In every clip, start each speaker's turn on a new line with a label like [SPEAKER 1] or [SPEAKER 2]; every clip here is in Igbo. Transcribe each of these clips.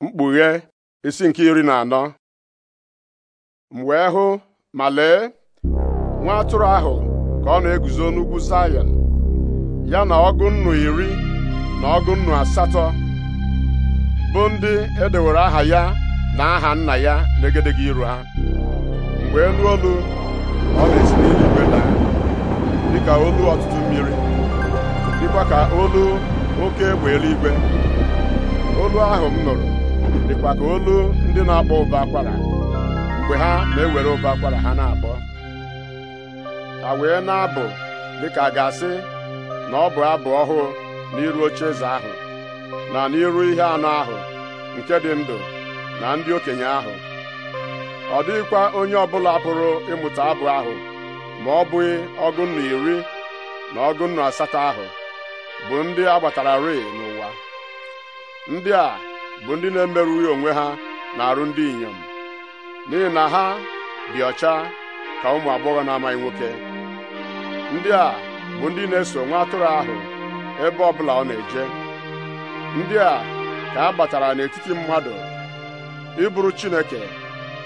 [SPEAKER 1] mkpughe isi nke iri na anọ m wee hụ ma lee nwa atụrụ ahụ ka ọ na-eguzo n'ugwu Sayọn ya na ọgụ nnu iri na ọgụ nnu asatọ bụ ndị edewere aha ya na aha nna ya n'egedege iru ha mgbe elu olu ọ na-esi n'eluigwe daa dịka olu ọtụtụ mmiri dịkwa ka olu oke egbe eluigwe olu ahụ m nụrụ dịkwa ka olu ndị na-akpọ ụba akwara mgbe ha na-ewere ụba akwara ha na-akpọ ha wee na-abụ dịka a ga-asị na ọ bụ abụ ọhụụ n'iru eze ahụ na n'iru ihe anụ ahụ nke dị ndụ na ndị okenye ahụ ọ dịghịkwa onye ọbụla pụrụ ịmụta abụ ahụ ma ọ bụghị ọgụ iri na ọgụ asatọ ahụ bụ ndị agbatararị n'ụwa ndị a bụ ndị na-emerụghị onwe ha na-arụ ndị inyom n'ihi na ha dị ọcha ka ụmụ agbọghọ na-amaghị nwoke ndị a bụ ndị na-eso nwa atụrụ ahụ ebe ọ bụla ọ na-eje ndị a ka a gbatara n'etiti mmadụ ịbụrụ Chineke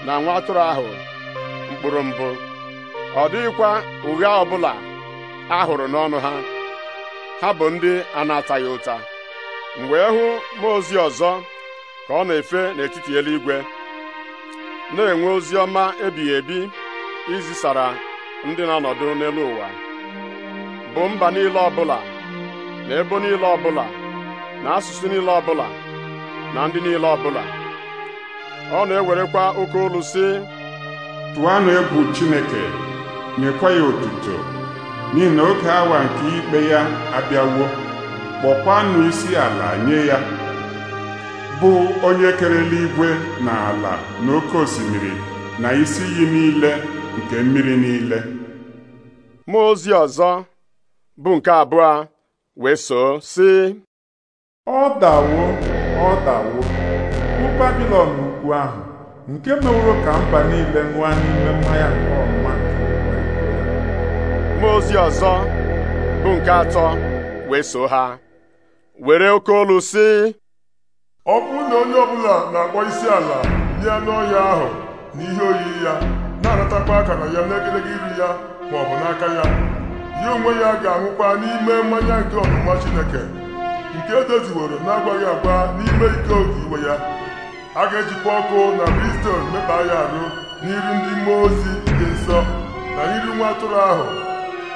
[SPEAKER 1] na nwa atụrụ ahụ mkpụrụ mbụ ọ dịghịkwa ụgha ọbụla a hụrụ n'ọnụ ha ha bụ ndị a na-ataghị ụta mgbe e hụ mmụọ ozi ọzọ ka ọ na-efe n'etiti eluigwe na-enwe ozi ọma ebighị ebi izisara ndị na-anọdụ n'elu ụwa bụ mba niile ọbụla na ebo niile ọbụla na asụsụ niile ọbụla na ndị niile ọbụla ọ na-ewerekwa oke olu sị tụanụ
[SPEAKER 2] egwu Chineke nyekwa ya otuto n'ihi na oge nke ikpe ya abịawo kpọkwanụ isi ala nye ya bụ onye kere eluigwe na ala na oke osimiri na isi iyi niile nke mmiri niile
[SPEAKER 1] mmụọ ozi ọzọ bụ nke abụọ wee soo sị ọ dawo ọ dawo bụ babilọn ukwu ahụ nke meworo ka mba niile ṅụa n'ime mmanya nke ọma mmụọ ozi ọzọ bụ nke atọ
[SPEAKER 2] wee ha were oke olu si. ọ bụrụ na onye ọbụla na-akpọ isi ala nye n'ọhịa ọhịa ahụ na ihe oyiyi ya na-anatakwa akara ya n'egedege iri ya ma ọ bụ n'aka ya ya onwe ya ga-anwụkwa n'ime mmanya nke ọnụma Chineke nke edoziworo na-agwaghị agwa n'ime ike oge iwe ya a ga-ejikwa ọkụ na Bristol mekpa ya arụ n'iru ndị mmụọ ozi dị nsọ na iri nwa atụrụ ahụ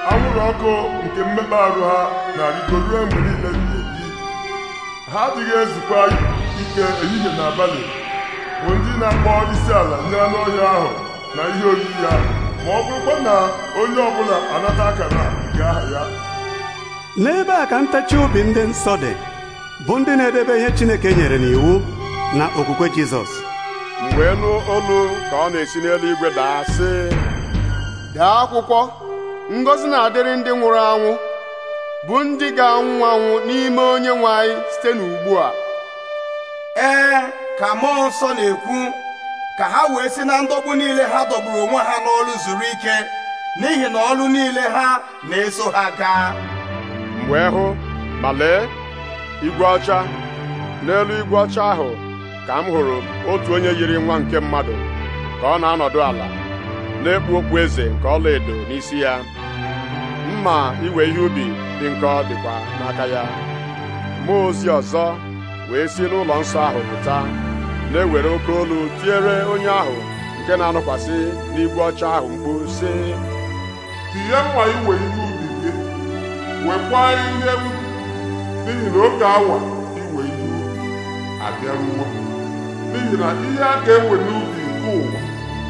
[SPEAKER 2] anwụrụ ọkụ nke mmekpa arụ ha na-arịgo mgbe niile ebi ha adịghị ezukwa ike ehihie na abalị bụ ndị na-akpọ isi ala nye anụ ahụ na ihe oriri ya ma ọ bụrụkwa na onye ọbụla anata akara ga aha ya
[SPEAKER 1] N'ebe a ka ntachi obi ndị nsọ dị bụ ndị na-edebe ihe Chineke nyere n'iwu na okwukwe Jizọs Mgbe wee nụ olu ka ọ na-esi n'eluigwe daa sị dee akwụkwọ ngọzi na-adịrị ndị nwụrụ anwụ bụ ndị ga-anwụ anwụ n'ime onye nwe anyị site n'ugbu a ee ka mmụọ nsọ na-ekwu ka ha wee si na ndọgbu niile ha dọgburu onwe ha n'ọlụ zuru ike n'ihi na ọlụ niile ha na-eso ha gaa m wee hụ ma lee igwe ọcha n'elu igwe ọcha ahụ ka m hụrụ otu onye yiri nwa nke mmadụ ka ọ na-anọdụ ala na-ekpu okwu eze nke ọla edo n'isi ya mma iwe ihe ubi dị nkọ dịkwa n'aka ya mmụọ ozi ọzọ wee si n'ụlọ nsọ ahụ pụta na-ewere oke olu tiere onye ahụ nke na anụkwasị n'igwe ọcha
[SPEAKER 2] ahụ mkpu sị tinye mma iwe ihe ubi gị wekwaa ihe ubi n'ihi na oge awa iwe ihe ubi abịaruo n'ihi na ihe a ga-ewe n'ubi nke ụwa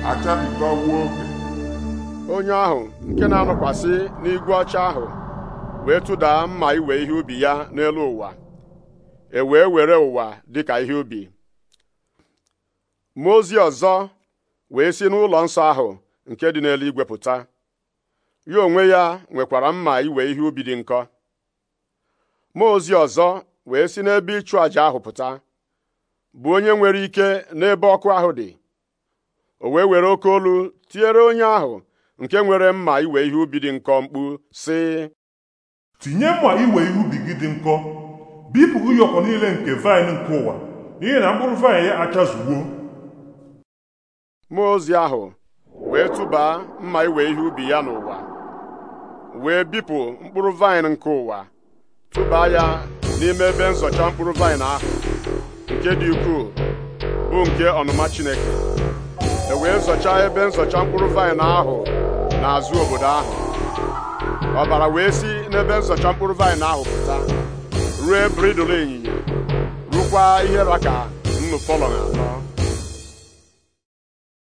[SPEAKER 2] achabikọwo oge
[SPEAKER 1] onye ahụ nke na anụkwasị n'igwe ọcha ahụ wee tụdaa mma iwe ihe ubi ya n'elu ụwa e wee were ụwa dịka ihe ubi mmụọ ozi ọzọ wee si n'ụlọ nsọ ahụ nke dị igwe pụta ya onwe ya nwekwara mma iwe ihe ubi dị nkọ mmụọ ozi ọzọ wee si n'ebe ịchụ àjà ahụ pụta bụ onye nwere ike n'ebe ọkụ ahụ dị o wee were oke olu tinyere onye ahụ nke nwere mma iwe ihe ubi dị nkọ mkpu sị tinye
[SPEAKER 2] mma iwe ihe ubi gị dị nkọ bipụ ụyọkọ niile nke vaịn nke ụwa n'ihi na mkpụrụ vaịn ya achazugbuo mmụọ ozi ahụ wee tụba
[SPEAKER 1] mma iwe ihe ubi ya n'ụwa wee bipụ mkpụrụ vaịn nke ụwa tụba ya n'ime ebe nzọcha mkpụrụ vaịn ahụ nke dị ukwuu bụ nke ọnụma Chineke e wee zọcha ebe nzọcha mkpụrụ vaịn ahụ n'azụ obodo ahụ ọbara wee si n'ebe nzọcha mkpụrụ vaịn ahụ pụta ruo ebere idolo ịnyịnya rukwa ihe raka nnụ fọlọ na atọ